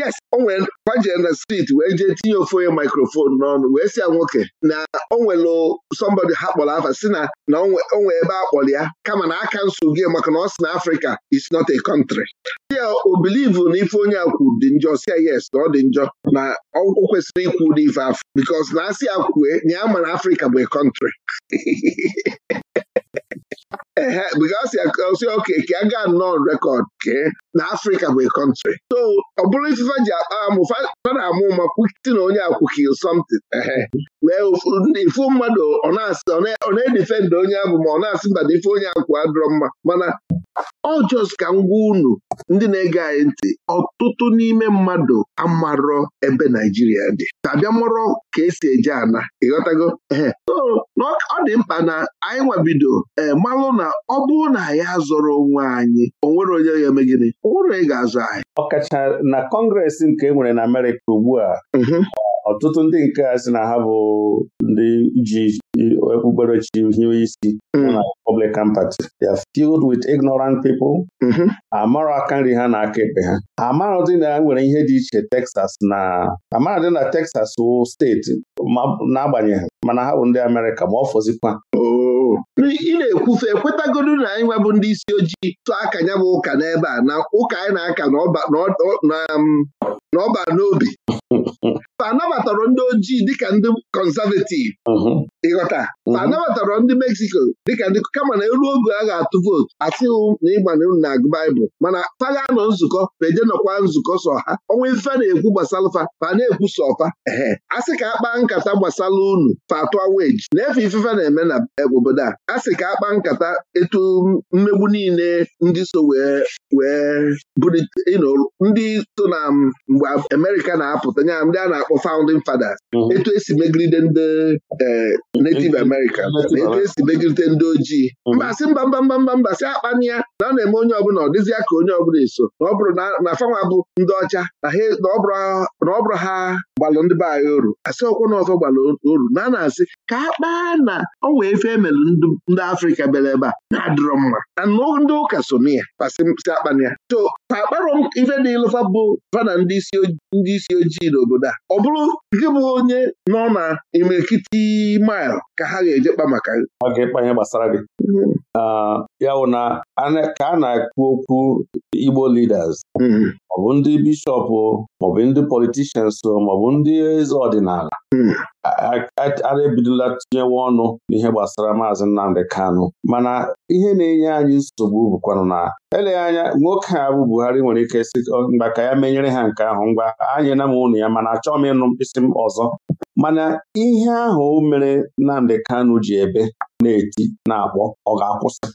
B: yes o nwere kwaje na street wee jee tinye ofe onye mikrofon n'ọnụ wee si ya nwoke na o nwere somebody ha kpọrọ afa si na na onwe ebe a kpọrọ ya kama na aka nsogbu gị maka na ọ si na Afrịka is not a country ya o bilivu na ife onye akwụ dị njọ si ya yes na ọ dị njọ na o kwesịrị ikwu n'ife afọ because na asị akwue na ya ma na Afrịka bụ a country [laughs] ehe bikọsi oke ka a ga nọọ rekọd kee na afrịka bụ kọntrị so ọ bụrụ ifefe ji amụfa na-amụ ma kwusi na onye akwụki something ehe wee ifu mmadụ ọ na-edifendị onye abụ ma ọ na-asị mba na ife onye akwụ adọrọ mma mana ọ jọs ka ngwa unu ndị na-ege anyị ntị ọtụtụ n'ime mmadụ amarọ ebe Naijiria dị ka ka esi eje ana ịghọtago ee ọ dị mkpa na anyị nwabido ee eh, malụ na ọ bụrụ na ya zọrọ onwe anyị o onye ga-eme gịnị o ga azụ anyị
A: ọkacha na kọngresị nke e nwere na Amerịka ugbu a mhm. ọtụtụ ndị nke a sị na ha bụ ndị ji okpukperechi hiwe isi mhm. na Republican Party they are filled with ignorant people mhm. amara aka nri ha na aka ekpe ha amaradị na nwere ihe dị iche Texas na amaradị na Texas wụ steeti n'agbanyeghị mana ha bụ ndị Amerịka ma ọ fọzikwa oh. ị na-ekwufe
B: ekwetagodu na anyị nwebụ ndị isi ojii tụọ aka ya bụ ụka n'ebe a na ụka anyị na-aka n'ọba um, n'obi [laughs] anabatarọ ndị ojii dịka ndị kọnzavetiv ịghọta anabatara ndị Mexico dịka ndị kama na eru oge a ga-atụ vootu asịghị na ịgbanye na-agụ baịbụl mana paga nọ nzukọ beje nọkwa nzukọ sọ ha ọnwa ife na-ekwu gbasalụfa fa na-ekwu sọfa ehe a sị ka a kpaa nkata gbasara unu fa atụ weji na-efe ifefe na-eme na e, obodo a a sị ka akpa nkata etu mmegbu niile ndị so wee wee ndị so na um, mgbe Amerịka na-apụta nya ndị a na-akpọ founding fathers mhm. etu esi megide ndị eh, native America. na etu esi megide ndị ojii mhm. mbasị mba mba mba mba mbasị akpani ya na ọ na-eme onye ọbụla ọ dịzịa ka onye ọbụla eso na na fanwa bụ ndị ọcha na ọ bụrụ ha gbalụ ndị be anyị oru asị ọkwụ na ọzọ gbalụ oru na a na-asị ka akpa na ọ wee fe emelụ ndị Afrịka bịara ebe a na-adịrọ mma anụ ndị ụka so na ya pasi akpana ya to ka akparọ m ife dị ịlụfa bụ fana ndị isi ojii n'obodo a ọ bụrụ gị bụ onye nọ na imirikiti
A: mail ka ha ga-eje kpa maka ọ gbasara gị mm-hmm. ya na ka a na-ekwu okwu Igbo liders mm-hmm. maọbụ ndị bishọp maọbụ ndị politishans maọbụ ndị eze ọdịnala mm-hmm. ara ebidola tinyewe ọnụ n'ihe gbasara maazị Nnamdi Kanụ mana ihe na-enye anyị nsogbu bụkwanụ na eleghị anya nwoke a bụ Buhari nwere ike si mgba ka ya menyere ha nke ahụ ngwa na m ụnụ ya mana achọghị m ịnụ mkpịsị m ọzọ mana ihe ahụ mere Nnamdi Kanụ ji ebe na-eti na-akpọ ọ ga-akwụsị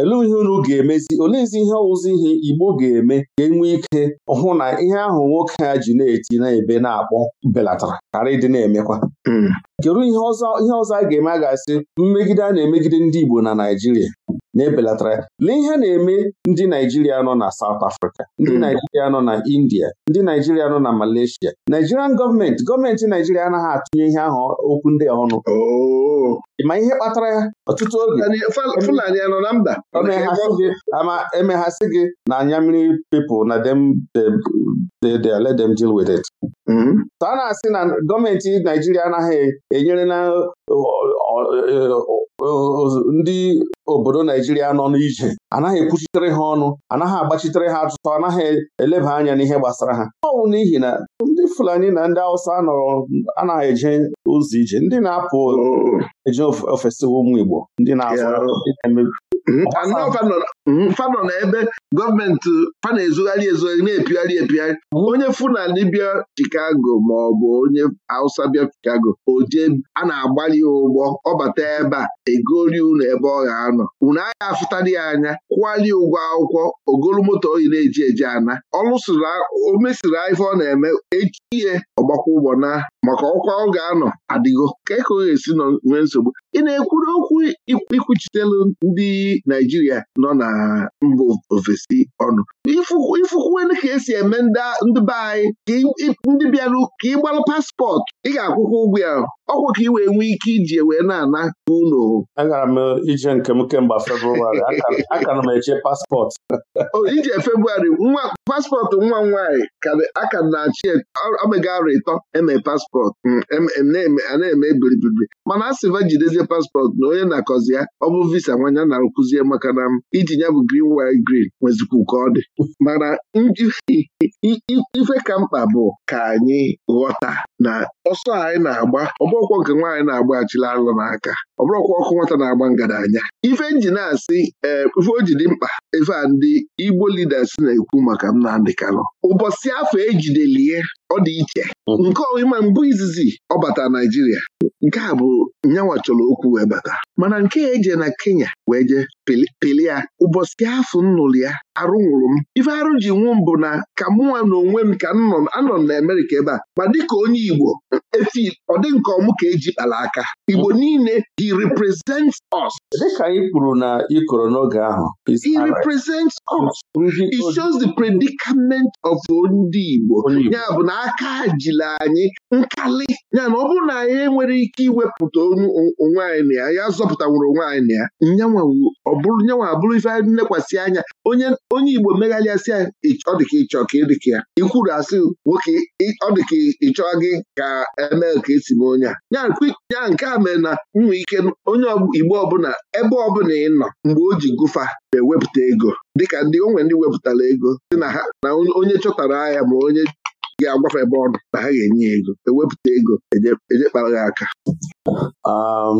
A: elee ihe unu ga-emezi oleezi ihe ọwụzi ihe Igbo ga-eme ga-enwe ike hụ na ihe ahụ nwoke a ji na-eti na-ebe na-akpọ belatara ghara ịdị na-emekwa hmm. kedu ihe ọzọ a ga-eme a ga-asị mmegide a na-emegide ndị Igbo na Naịjirịa na-ebelatara lee ihe na-eme ndị Naijiria nọ na South Africa ndị hmm. Naijiria nọ na India ndị Naijiria nọ na Malaysia Nigerian gọọmenti gọọmenti Naijiria anaghị atụnye ihe ahụ okwu ndị ọnụ oh. ma ihe kpatara ya ọtụtụ oge na emeghasị gị na anya mmiri na dem let dem deal with it Ka a na-asị na gọọmenti Naijiria anaghị enyere na e, ndị obodo Naijiria nọ n'ije anaghị ekwuchitere ha ọnụ anaghị agbachitere ha atụtụ anaghị eleba anya n'ihe gbasara ha ọ bụ n'ihi na ndị Fulani na ndị Hausa nọrọ anaghị eje ụzọ ije ndị na-apụ mm-hmm. eje ofesi ụmụ Igbo ndị na-azụ Hmm?
B: fanọ na hmm? ebe gọọmenti fana ezugharị ezugharị na-epigharị epigharị hmm? onye fulani bịa Chicago ma ọ bụ onye Hausa bịa Chicago Oje a na-agbalị ụgbọ ọbata ebe a egori unu ebe ọ ga-anọ unu agha afụtara ya anya kwụgharị ụgwọ akwụkwọ ogolu moto oyi na-eji eji ana ọlụsiri o mesiri ife ọ na-eme echi ihe ọgbakwa ụgbọ na maka ọkwa ọ ga-anọ adịgo ka ka ọ ga-esi nọ nwee nsogbu ị na-ekwuru okwu ikwuchitelu ndị Naijiria nọ na mbụ ofesi ọnụ ifụkwuelu ka esi eme ndị be anyị ndị ka ị gbalụ paspọtụ ị ga-akwụkwọ ụgwọ ya ọkwa ka ị wee nwee
A: ike iji wee na-ana ụlọ agara m ije nke m kemgbe Febrụwarị aka na m eche paspọtụ
B: ije Febrụwarị nwa paspọtụ nwa m nwaanyị aka na-achị omega arụ ịtọ eme paspọtụ paspọtụ a na-eme ebiribiri mana a sịva jidezie paspọtụ na onye na-akọzi ya ọ bụ visa nwanya na-akụzie maka na iji ya bụ grin wi grin nwezikwu ka ọ dị mana ife ka mkpa bụ ka anyị ghọta na ọsọ anyị na-agba ọbọkwọ nke nwaanyị na-agba achịla n'aka ọ ọkụ nwata na-agba anya. ife na asị ee eh, ife o dị mkpa ife a ndị Igbo leaders na-ekwu maka Ndị Kanụ ụbọchị afọ ejidelie ọ dị iche mm-hmm. nke ọma mbụ izizi ọ bata Naijiria nke a bụ nyanwa chọrọ okwu wee bata mana nke eje na Kenya wee jee pili ya ụbọchị afọ nnụrụ ya arụ nwụrụ m ife arụ ji nwụ m bụ na ka mụnwa na onwe m ka anọ m na Amerịka ebe a ma dịka onye Igbo efi ọ dị nke ọmụ ka eji kpara aka Igbo niile hi represents us dịka anyị
A: kwuru na n'oge ahụ
B: us he shows the predicament of ndị Igbo ya bụ na aka jila anyị nkali ya na ọ bụrụ na anyị enwere ike iwepụta onwe anyị na ya ya zọpụtaworo onwe anyị na ya nyanwa nyanwa abụrụ ife nlekwasị anya onye onye Igbo megharịasị ya ọ dịka ịchọ ka ịdịka ya ikwuru asị nwoke ọ dịka ịchọ gị ka eme ka esi m onye a ya nke a mere na nwe ike onye Igbo ọbụla ebe ọbụla ị nọ mgbe o ji gụfa ewepụta ego dịka ndị onwe ndị wepụtara ego dị na ha na onye chọtara ahịa ma onye
A: ga-agwafe ebe na ha ga-enye e e e ya ego ewepụta ego eje kpara aka um,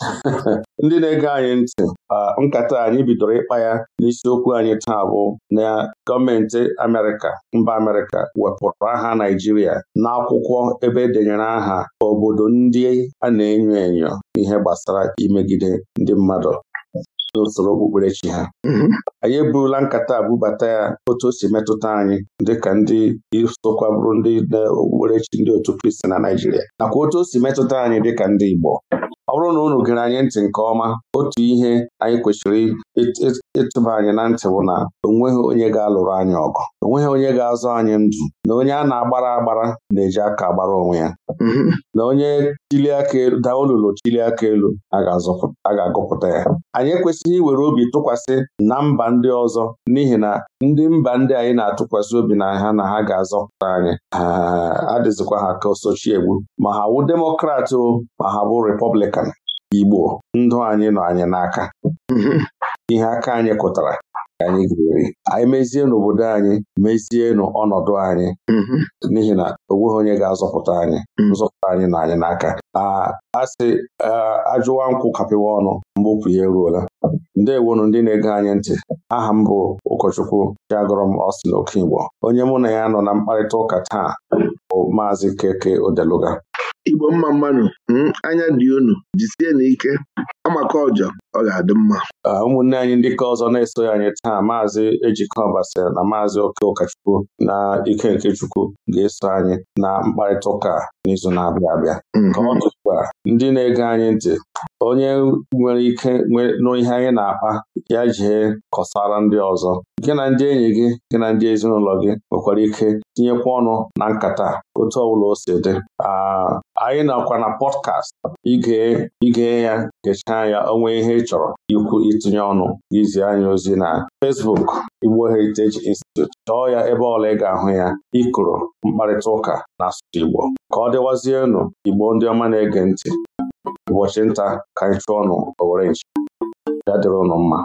A: [laughs] ndị na-ege anyị ntị uh, nkata anyị bidoro ịkpa ya n'isiokwu anyị taa bụ na gọọmenti Amerịka mba Amerịka wepụrụ aha Naijiria n'akwụkwọ ebe edenyere aha obodo ndị a na-enyo enyo ihe gbasara imegide ndị mmadụ n'usoro okpukperechi ha mhm. anyị eburula nkata bubata ya otu o si metụta anyị dịka ndị sokwa bụrụ ndị okpukperechi ndị otu Kristi na Naịjirịa nakwa otu o si metụta anyị dịka ndị Igbo ọ bụrụ na unu gere anyị ntị nke ọma otu ihe anyị kwesịrị ịtụba anyị na ntị bụ na onweghị onye ga-alụrụ anyị ọgụ onweghị onye ga-azụ anyị ndụ na onye a na-agbara agbara na-eji aka agbara onwe ya na onye chili aka elu daa olulu chili aka elu a ga-agụpụta ya anyị ekwesịghị iwere obi tụkwasị na mba ndị ọzọ n'ihi na ndị mba ndị anyị na-atụkwasị obi na ha na ha ga-azọpụta anyị adịzikwa ha ka sochie egwu ma ha bụ demokrat ma ha bụ repọblikan Igbo ndụ anyị nọ anyị n'aka [laughs] ihe aka anyị kụtara ka anyị ga-eri anyị mezienụ obodo anyị mezienụ ọnọdụ anyị [laughs] n'ihi na o nweghị onye ga-azọpụta anyị hmm. nzọpụta anyị nọ anyị n'aka a ajụwa nkwụ kapịwa ọnụ mbopụ ya eruola ndewonụ ndị na-ege anyị ntị aha m bụ ụkọchukwu Chiagọrọm Oke Igbo. onye mụ na ya nọ na mkparịta ụka taa bụ Maazị Keke Odeluga
B: igbo mma mmanụ hmm, anya dị unu jisie na ike amaka ọjọ ọ ga-adị mma
A: ụmụnne anyị ndị ka ọzọ na-esoghị anyị taa maazị Ejike Ọbasa na maazị Oke Ụkachukwu na Ike nke Chukwu ga-eso anyị na mkparịta ụka n'izu na-abịa abịa hmm. ka ọ ndị na-ege anyị ntị onye nwere ike nụ ihe anyị na-akpa ya jee kọsara ndị ọzọ gị na ndị enyi gị gị na ndị ezinụlọ gị nwekwara ike tinyekwa ọnụ na nkata otu ọbụla o si dị anyị nakwa na pọdkast igee ya gechaa ya onwe ihe ị chọrọ ikwu itinye ọnụ izi anyị ozi na Fesbuk Igbo Heritage Institute chọọ ya ebe ọla ị ga-ahụ ya ịkụrụ mkparịta ụka na asụsụ Igbo ka ọ dịwazienụ Igbo ndị ọma na-ege ntị ụbọchị nta ka anyị chụọ ọnụ owere ya dịrị ụnụ mma